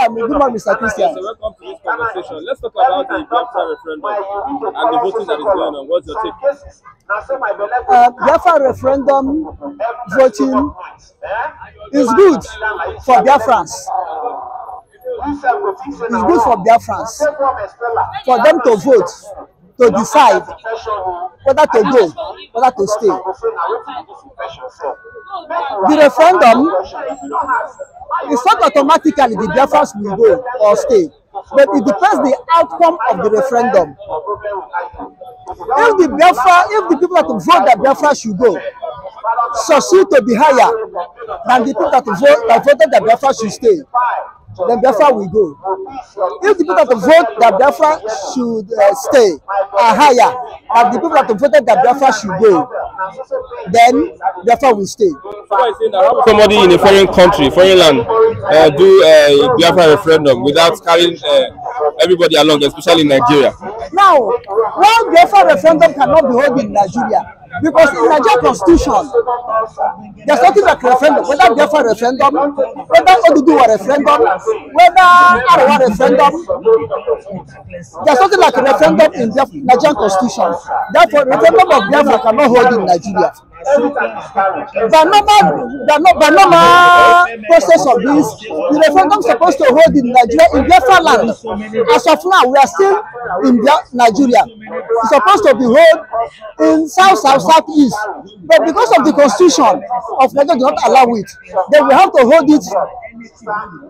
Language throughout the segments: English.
Welcome, good morning, Mr. Christian. welcome to this conversation. Let's talk about the Biafra referendum and the voting that is going on. What's your take? Uh, Biafra referendum voting is good for Biafrans. It's good for Biafrans. For them to vote to decide whether to go whether to stay the referendum is not automatically the Biafrans will go or stay but it depends the outcome of the referendum if the Biafra if the people that vote that Biafra should go succeed to be higher than the people that vote that voted that Biafra should stay then Biafra will go. If the people that vote that Biafra should uh, stay are higher than the people that voted that Biafra should go, then Biafra will stay. Somebody in a foreign country, foreign land, uh, do uh, a Biafra referendum without carrying uh, everybody along, especially in Nigeria. Now, one Biafra referendum cannot be held in Nigeria. Because in Nigerian constitution, there's nothing like referendum, whether Biafra referendum, whether Oduduwa referendum, whether Arawa referendum. There's nothing like referendum in the Nigerian constitution. Therefore, referendum of Biafra cannot hold in Nigeria. The normal, the, the normal process of this, the referendum supposed to hold in Nigeria in Biafra land. As of now, we are still in Nigeria. It's supposed to be held in south, south, East, But because of the constitution of Nigeria do not allow it, then we have to hold it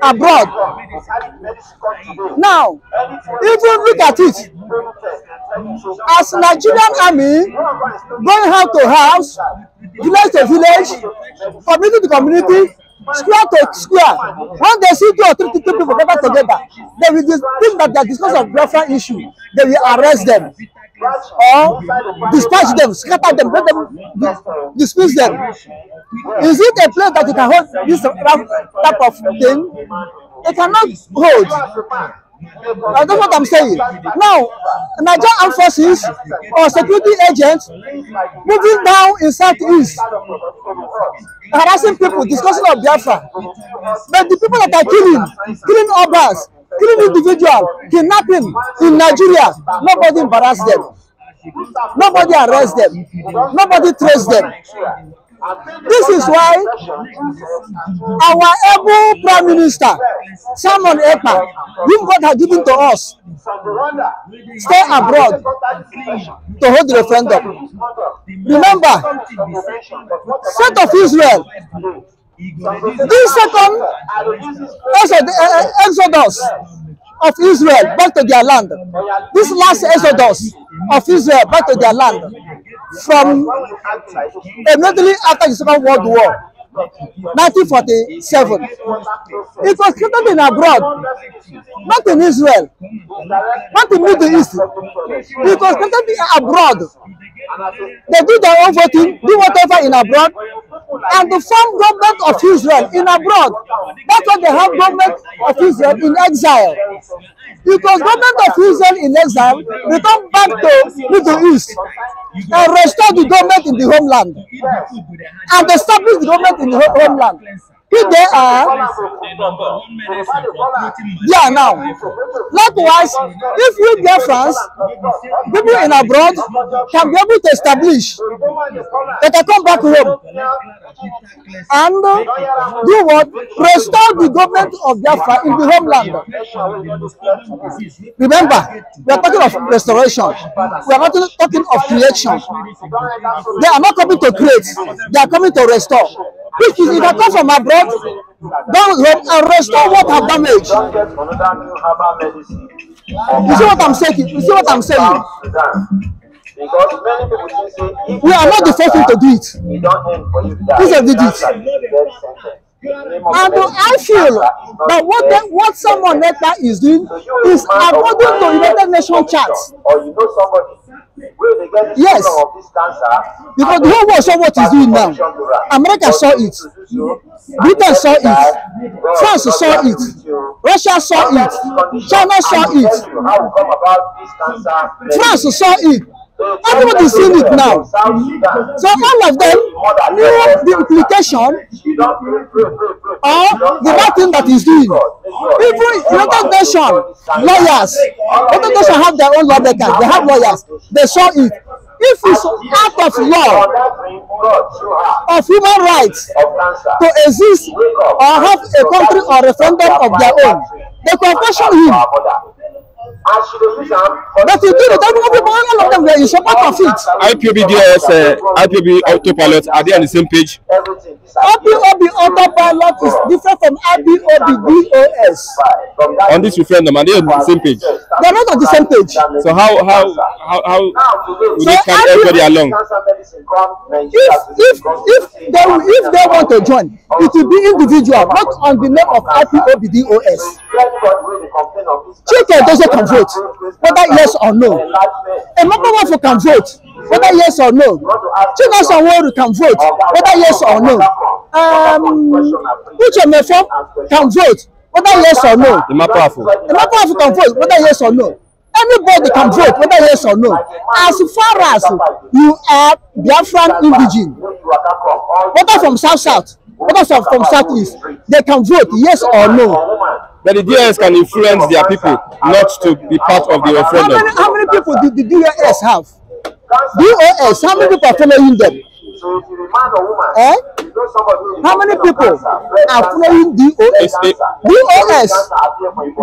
abroad. Now, even look at it, as Nigerian army going house to house, village to village, community to community, square to square, when they see two or three people gathered together, they will think that they are discussing of welfare issue, they will arrest them or dispatch them, scatter them, let them disperse them. Is it a place that you can hold this type of thing? It cannot hold. Now, that's what I'm saying. Now, Nigerian armed forces or security agents moving down in southeast, harassing people, discussing of Biafra. But the people that are killing, killing others, killing individual, kidnapping in Nigeria. Nobody embarrass them. Nobody arrest them. Nobody trace them. This is why our able Prime Minister, Simon Ekpa, whom God has given to us, stay abroad to hold the referendum. Remember, state of Israel This second eh, eh, exodus of Israel back to their land, this last exodus of Israel back to their land from immediately after the Second World War, 1947. It was created in abroad, not in Israel, not in Middle East. It was created abroad They do their own voting, do whatever in abroad, and the form government of Israel in abroad. That's why they have government of Israel in exile. Because government of Israel in exile return back to Middle East and restore the government in the homeland and establish the government in the homeland if ah. they are yeah now likewise if you get france people in abroad can be able to establish they can come back home and uh, do what restore the government of biafra in the homeland remember we are talking of restoration we are not talking of creation they are not coming to create they are coming to restore which is it come from abroad don't home and restore what have damaged. You see what I'm saying? You see what I'm saying? we are not the first one to do it. These are did it. And I feel that what then, what someone like that is doing is according to United Nations charts. Or you know somebody Yes. Because the whole world saw what he's doing now. America saw it. Britain saw it. France saw it. Russia saw it. China saw it. France saw it. Everybody is seeing it now. So all of them knew the implication or the bad thing that he's doing. Even United Nations lawyers, United Nations have their own law they have lawyers, they saw it. If it's out of law, of human rights to exist or have a country or referendum of their own, they confession him. But you do it, every all of them, they is part of it. IPOBDS, uh, IPOB autopilot, are they on the same page? IPOB autopilot is different from DOS. On this referendum, are they on the same page? They're not on the same page. So how, how, how, how will so they carry everybody along? If, if, if, they, if they want to join, it will be individual, not on the name of IPOBDOS. Chicken doesn't control vote whether yes or no Emefiele um, can vote whether yes or no Chinyere Sanwo-Olu can vote whether yes or no um, Uche Mefo can vote whether yes or no Emefiele can vote whether yes or no anybody can vote whether yes or no as far as you are Biafran indigene whether from south south others are from southeast they can vote yes or no. But the DAS can influence their people not to be part of the referendum. How many, how many people did the DAS have? DOS, how many people are following them? Eh? How many people are following DOS? DOS,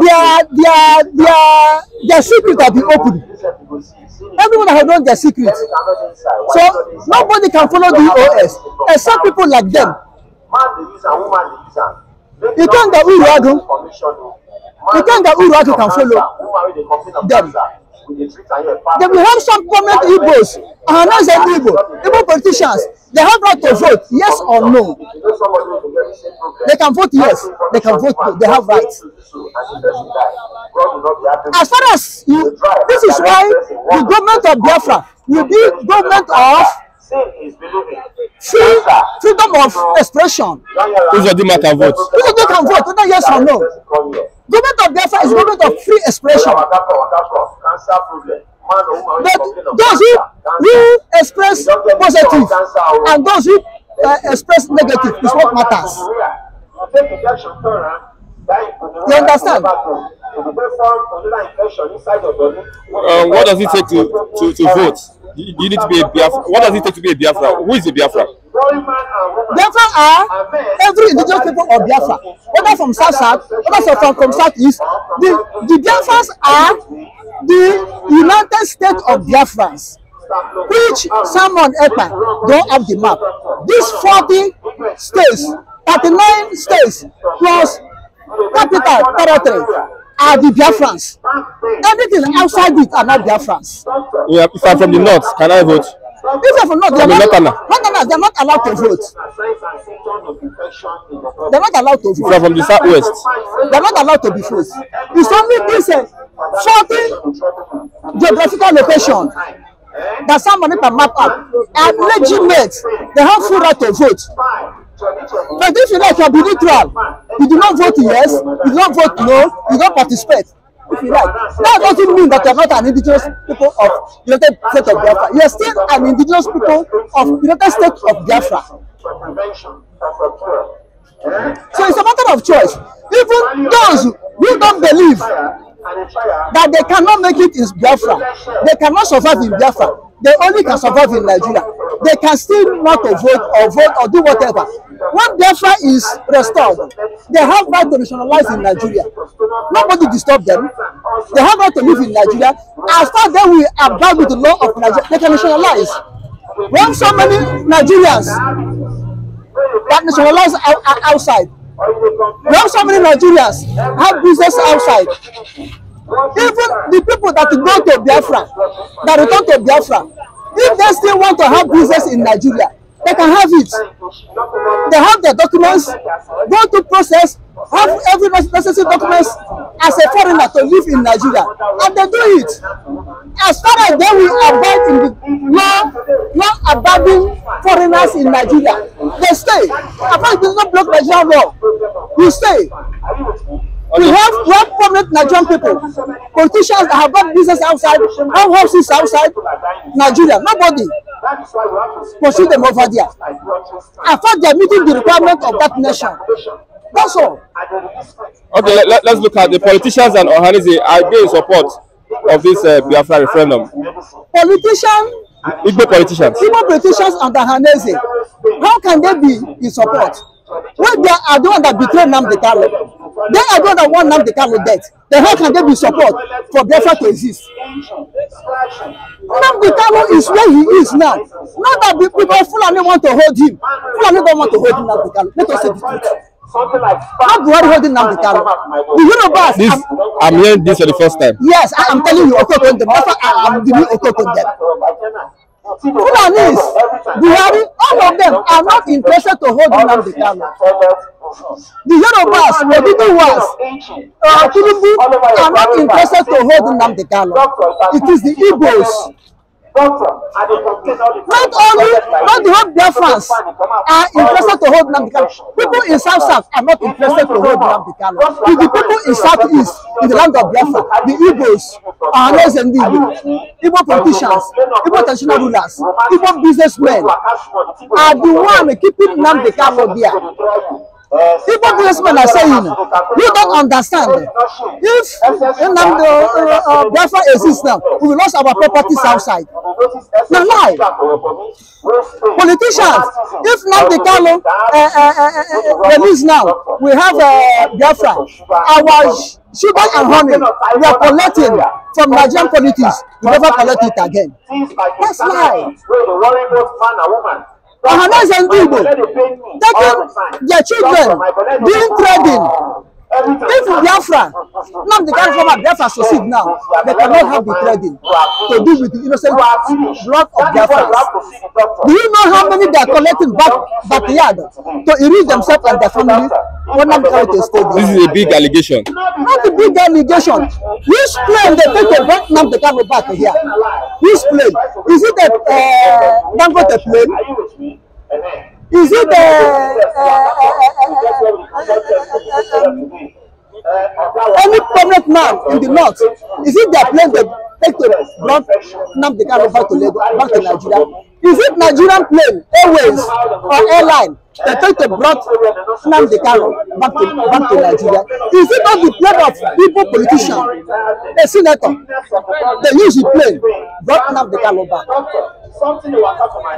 their, their, their, their secret have been opened. Everyone has known their secrets, So nobody can follow DOS except people like them. You use am woman dey use am. ikanga uru agụ ikanga uru can follow them? They will help some government igbos and announce them igbo igbo politicians they have right to vote yes or no they can vote yes they can vote no they have rights. as far as you this is why the government of biafra will be government of freedom of expression. Who's Uzodi so can vote. Who's Uzodi so can vote, whether yes or no. Government of Biafra is government of free expression. But those who, who express positive and those who uh, express negative is what matters. You understand? Um, what does it take to, to, to vote? You, you need to be a Biafra. What does it take to be a Biafra? Who is a Biafra? Biafra are every indigenous people of Biafra, whether from South South, whether from, from South East. The, the Biafras are the United States of Biafrans, which Simon Ekpa don't have the map. These 40 states, 39 states, plus capital territory, are the Biafrans. Everything outside it are not Biafrans. Yeah, if I'm from the north, can I vote? If I'm from north, they're not, northerners, they're not allowed to vote. They're not allowed to vote. If I'm from the southwest, they're not allowed to be vote. It's only this uh, certain geographical location that somebody can map up and legitimate. They have full right to vote. But if you like, you'll be neutral. You do not vote yes, you do not vote no, you don't participate. If you like, that doesn't mean that you're not an indigenous people of United States of Biafra. You're still an indigenous people of United States of Biafra. So it's a matter of choice. Even those who don't believe that they cannot make it in Biafra, they cannot survive in Biafra, they only can survive in Nigeria they can still not vote or vote or do whatever. When Biafra is restored, they have right to nationalize in Nigeria. Nobody disturb them. They have right to live in Nigeria. As far as we abide with the law of Nigeria, they can nationalize. When so many Nigerians that nationalize outside, when so many Nigerians have business outside, even the people that go to Biafra, that return to Biafra, If they still want to have business in Nigeria, they can have it. They have their documents, go to process, have every necessary documents as a foreigner to live in Nigeria. And they do it. As far as they will abide in the law, law abiding foreigners in Nigeria, they stay. Apart from not block Nigerian law, you stay. We have we have prominent Nigerian people, politicians that have got business outside, have houses outside Nigeria. Nobody pursue them over there. I thought are meeting the requirement of that nation. That's all. Okay, let, let's look at the politicians and Ohanizi are they in support of this uh, Biafra referendum? Politician. Igbo politicians. Igbo politicians and Ohanizi. How can they be in support? Well, they are the one that betrayed Namdi Kano. They are going to want the camel death. Then how can they be support for Biafra to exist? Nnamdi Kanu is where he is now. Not that the people Fulani want to hold him. Fulani don't want to hold him Kanu. Let us say the truth. Something like not Buhari holding down the Kanu. The Yorubas. This, I'm, I'm hearing this for the first time. Yes, I am telling you, Okoko them. That's why I am giving Okoko them. Fulanis, Buhari, all of them are not interested to hold Nnamdi Kanu. The Yorubas, Odudu was, uh, Tinubu are not interested to hold Nnamdi Kanu. It is the Igbos. Not only, not the whole Biafrans are interested to hold Nnamdi Kanu. People in South South are not interested to hold Nnamdi Kanu. If the people in South East, in the land of Biafra, the Igbos are less than the Igbo. Igbo politicians, Igbo traditional rulers, Igbo businessmen are the one keeping Nnamdi Kanu there. Igbo businessmen are saying you don't understand. If Nnamdi uh, uh, uh, Biafra exists now, we will lose our properties outside. Now why? Politicians, if Nnamdi Kanu uh, uh, uh, uh release now, we have uh, Biafra. Our sugar and honey we are collecting from Nigerian politics. We never collect it again. That's lie. Ohanas people taking their children, doing trading, if biafra now the kind former biafra succeed now they cannot have the trading to do with the innocent blood of their biafrans do you know how many they are collecting back backyard to enrich themselves and their family One i'm trying to stay this is a big allegation. not a big allegation which plane they take to bring nam the kano back here which plane is it a uh, dangote plane. Is it Any prominent man in the north, is it their plane they take to brought Nnamdi Kanu back to Lagos, back to Nigeria? Is it Nigerian plane, airways or airline they take to brought the Kanu back to back to Nigeria? Is it not the plane of people politicians, a senator? They use the plane brought Nnamdi Kanu back.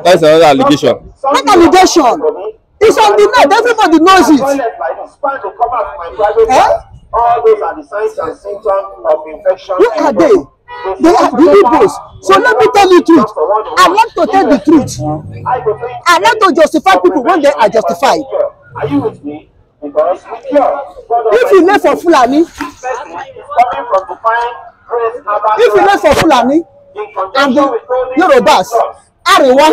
That's another allegation. Not allegation. It's on the net. Everybody knows it. Eh? All those are the signs and symptoms of infection. Who are they? They are liberals. So let me tell you the truth. I want to tell the truth. I want to justify people when they are justified. Are you with me? Because with your, if you left for Fulani, if you left for Fulani, and the Yorubas, Ariwa,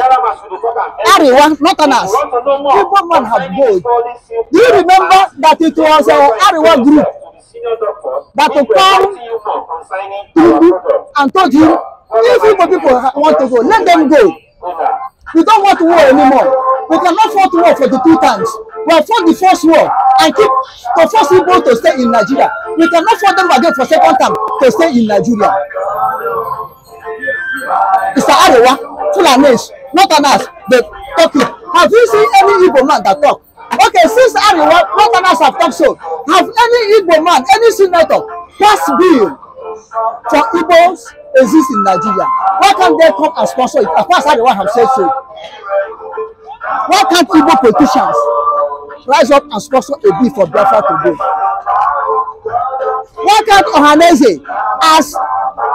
Ariwa, ass. people man have gold. Do you remember that it was our Ariwa group that to come and told you if Igbo people want to go let them go we don't want war anymore we cannot fight war for the two times we have fought the first war and keep to force Igbo to stay in Nigeria we cannot fight them again for second time to stay in Nigeria Mr. Arewa Fulanis not an ass but talk have you seen any Igbo man that talk Okay, since Ariwa, what others have talked so, have any Igbo man, any senator passed bill for Igbos exist in Nigeria? Why can't they come and sponsor it? As far as Ariwa have said so. Why can't Igbo politicians rise up and sponsor a bill for Biafra to do? Why can't Ohanese as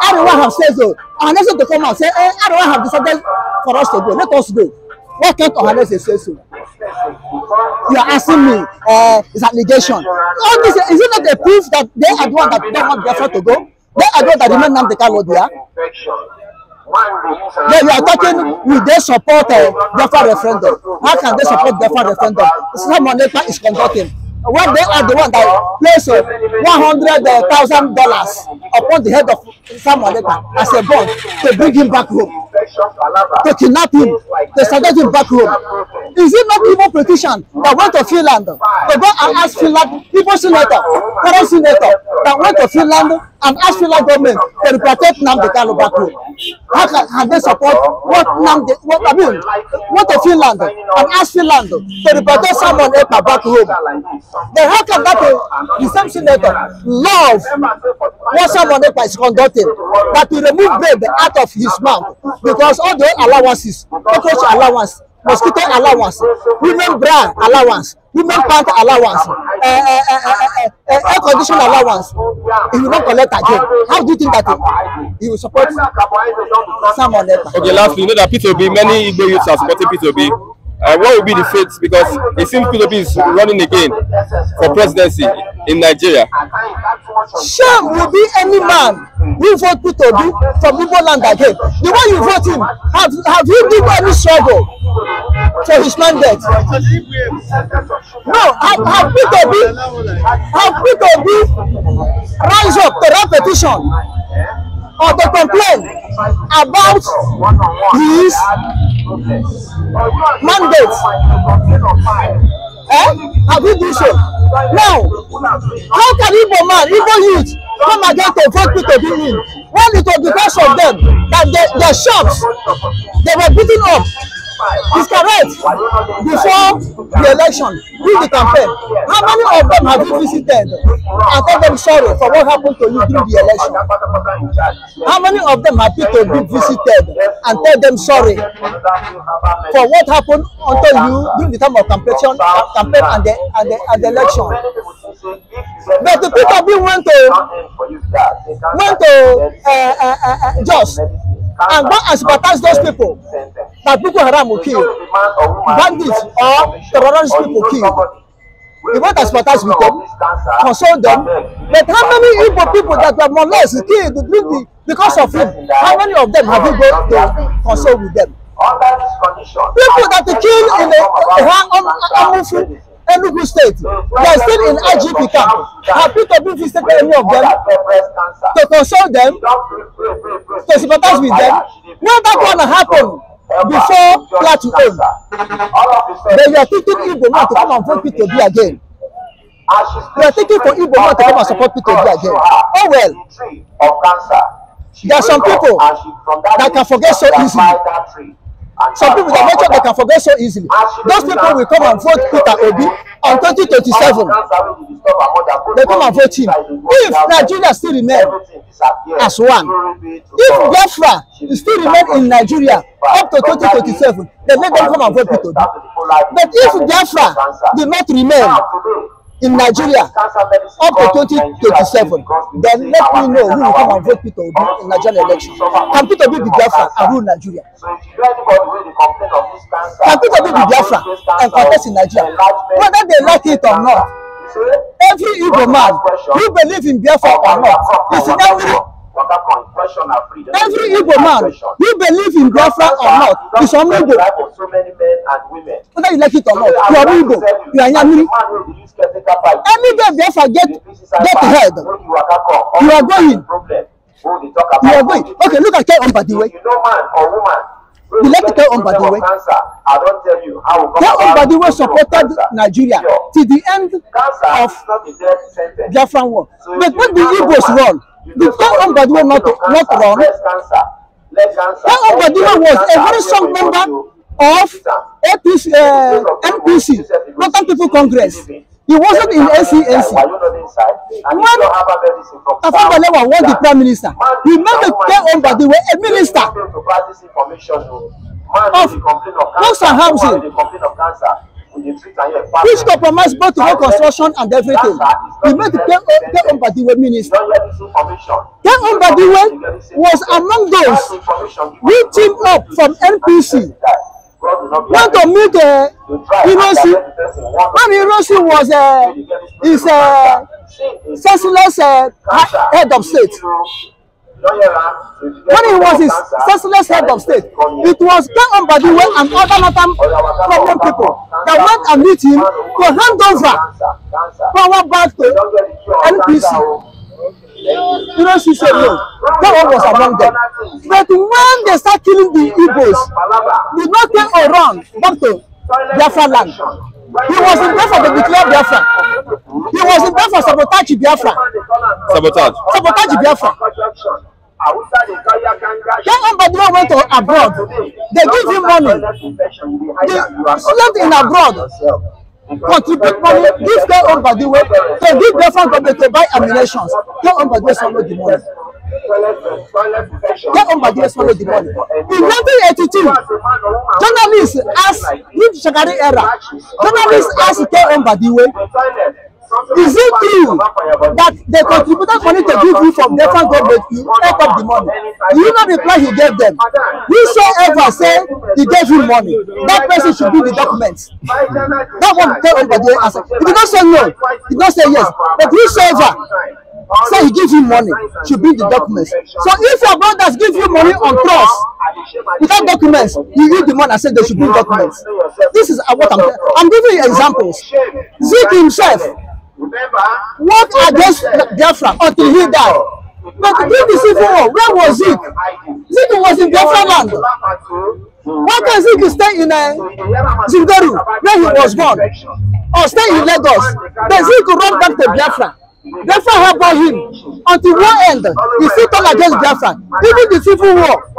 Ariwa have said so, Ohanese to come and say, hey, eh, Ariwa have decided for us to go, let us go. Why can't Ohanese say so? you are asking me uh, is allegation. All this is it not a proof that they are the one that don't want Biafra to go? They are the one that demand Nnamdi Kanu there. Then you are talking with their support uh, eh, Biafra referendum? How can they support Biafra referendum? Someone later is conducting. When they are the one that place uh, one hundred thousand dollars upon the head of Samuel Lepa as a bond to bring him back home. They kidnap him. They started him back home. Is it not Igbo politician that went to Finland to go and ask Finland, Igbo senator, current senator, that went to Finland and asked Finland government to protect Namdi Kano back home. How can, can they support what Namdi, what I mean, what to Finland and ask Finland to protect someone Epa back home? Then how can that be the same senator love what someone Epa is conducting, that to remove baby out of his mouth because all the allowances, cockroach allowance, mosquito allowance women bra allowance women pant allowance uh, uh, uh, uh, uh, air condition allowance you no collect again how do you think that he will support salmon later. okay lastly you know that Peter 2 b many igbo youths are supporting Peter 2 b uh, what will be the fate because it seems p b is running again for presidency in nigeria. shame will be any man who vote p b from igbo land again the way you vote him have have you been any struggle. So his mandate. dead. No, Agbit Obi, Agbit Obi rise up to that petition or to complain about his mandate. Eh? Have you do so? Now, how can evil man, evil youth, come again to vote Peter Obi in when it was because of them that the, the shops they were beating up is correct before the election during the campaign how many of them have you visited and tell them sorry for what happened to you during the election how many of them have you to be visited and tell them sorry for what happened unto you during the time of campaign campaign and the and the and the election but the people bin want to want to uh, uh, uh, uh just and go and sympathize those people that Boko Haram will kill, bandits or terrorist people kill. You want to sympathize with them, console them. But how many evil people that were more or killed because of him, how many of them have you gone to console with them? People that killed in the a, a, a, Enugu State. They are still in IGP camp. Happy to be visited any of them, to console them, to sympathize with them. No, that one happen before Plateau own. They are thinking Igbo man to come and vote Peter B again. They are thinking for Igbo man to come and support Peter B again. Oh well. There are some people that can forget so easily some people dey make sure they can forget so easily those people will come and vote peter obi on twenty twenty seven they come and vote him if nigeria still remain as one if biafra still remain in nigeria up to twenty twenty seven they make them come and vote peter obi but if biafra did not remain in Nigeria up to 2027, then let me know who will come and vote Peter Obi in Nigerian election. Can Peter Obi be Biafra and rule Nigeria? Can Peter Obi be Biafra and contest in Nigeria? Whether they like it or not, every Igbo man who believe in Biafra or not is in every Every Igbo man, you believe in Biafra or not, is from Igbo. Whether you like it or not, you are Igbo, you are Yamiri. Any day Biafra get, get ahead, you are going. You are going. Okay, look at Kai Ombadiwe. The way, way. you you. know, man or woman, we the Cancer. I don't tell left Kai Ombadiwe. the way supported Nigeria till the end of the Biafran war. But what the Igbos run, The song of Badiwe not, not wrong. Song of Badiwe was a very strong member of APC, uh, MPC, Northern People Congress. He wasn't in NCNC. When Afabalewa was the prime minister, he made a clear on Badiwe a minister of, of, of, of, of, of, which compromise both road construction and everything We made K.O. Badiwe minister K.O. Badiwe was among those we teamed up from NPC want to meet uh, Irosi when Irosi was uh, his uh, senseless uh, head of state. When he was his senseless head of state, it was Ken Ambadiwe and other Northern problem people that went and meet him to hand over power back to NPC. You know, she said no. That one was among them. But when they start killing the Igbos, they not turn around back to Biafra land. He was in there for the declare Biafra. He was in there for sabotage Biafra. Sabotage. Sabotage Biafra. Young entrepreneur went to abroad. They give him money. The student in abroad contribute money, give their own body way, to give different company to buy ammunition. Their own body swallow the money. Their own body swallow the money. In 1982, journalists asked, in Shagari era, journalists asked their own body way Is it true that the contributor money to give you from fund? government? You take up the money. You know the plan you gave them. Whosoever say he gave you money, that person should bring the documents. That one tell everybody answer. If you don't say no, he did not say yes. But whosoever say so he gives you money should bring the documents so if your brothers give you money on trust without documents you use the money and say they should bring documents this is what i'm i'm giving you examples zeke himself What against Biafra until he died? But during the civil war, where was he? Zigi was in Biafra land. Why can't Zigi stay in uh, Zingaru, where he was born, or stay in Lagos? Then Zigi run back to Biafra. Biafra help him until one end he still turn against Biafra even the civil war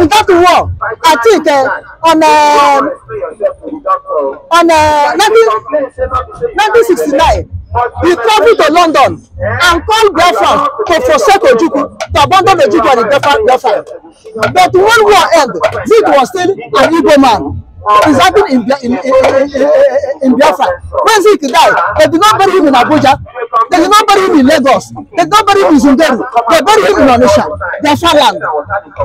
in that war I think uh, on uh, on uh, 1969 he traveled to London and called Biafra to forsake Ojukwu, to abandon Ojukwu and the Biafra. But when war ended, Zik was still an Igbo man. It's happened in, in, in, in Biafra. When Zik died, they did not bury him in Abuja. They did not bury him in Lagos. They did not bury him in Zungeru. They buried him in Onisha, Biafra land.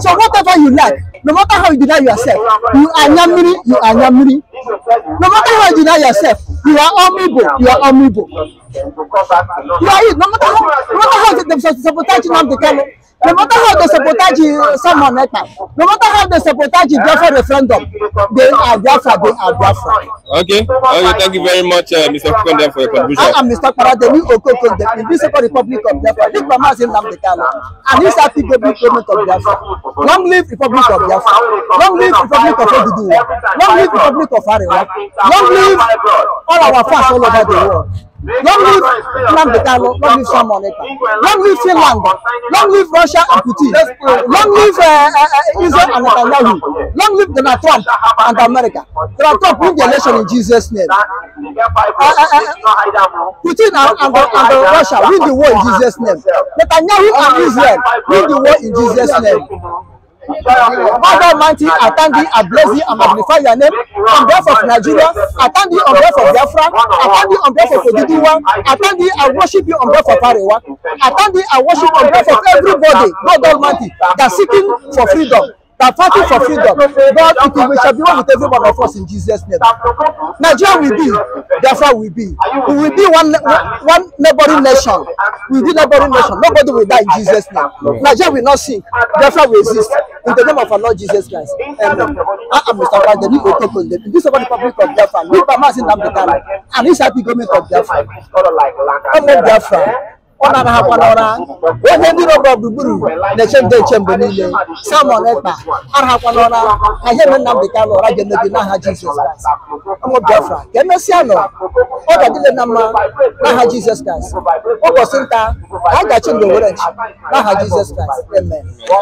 So whatever you like, no matter how you deny yourself, you are Yamiri, you are Yamiri. No matter how you deny yourself, you are honorable, you are honorable. Right, no matter how, no matter how they sabotage Nnamdi Kanu, no matter how they sabotage someone like that, no matter how they sabotage Biafra referendum, they are Biafra, they are Biafra. Okay, okay, thank you very much, uh, Mr. Konde, for your contribution. I am Mr. Parademi Okokonde, the Visible Republic of Biafra, the Bamas in Nnamdi Kanu, and this happy baby government of Biafra. Long live Republic of Biafra. Long live Republic of Odudu. Long live Republic of Arewa. Long live all our fans all over the world. Long live Nnamdi Kanu, long live Sam Oneka, long live Finland, long live Russia and Putin, long live eh, eh, eh, Israel and Netanyahu, long live Donald Trump and America. Donald Trump win the election in Jesus' name. Putin and, Russia win the war in Jesus' name. Netanyahu and Israel win the war in Jesus' name. Father Almighty, I thank thee, I bless thee, I magnify your name. On behalf of Nigeria, I thank thee on behalf of Biafra, I thank thee on behalf of Odidiwa, I thank thee, I worship you on behalf of Arewa, I thank thee, I worship on behalf of everybody, God Almighty, that's seeking for freedom that fighting for freedom, God, it will, shall be one with every one of us in Jesus' name. Nigeria will be, therefore will be. We will be one, one neighboring nation. We will be neighboring nation. Nobody will die in Jesus' name. Nigeria will not sink, therefore will exist. In the name of our Lord Jesus Christ. Amen. I am Mr. Biden, Nico Tokon, the Peace of the Republic of Biafra, Nipa Mazin Namdekara, and his happy government of Biafra. Amen, Biafra ọ na-arahakwa n'ụra onye ndị nọgọ gburugburu na-eche nde eche mgbe niile samọn ekpa arahakwa n'ụra ka ihe mere Nnamdị Kanụ ụra ga Jesus n'aha Jizọs Kraịst ụmụ Biafra ka emesịa nọ ọ ga-adịle na mma n'aha Jizọs Kraịst ụbọchị nta a ga-achị ndụ were nchi n'aha Jizọs amen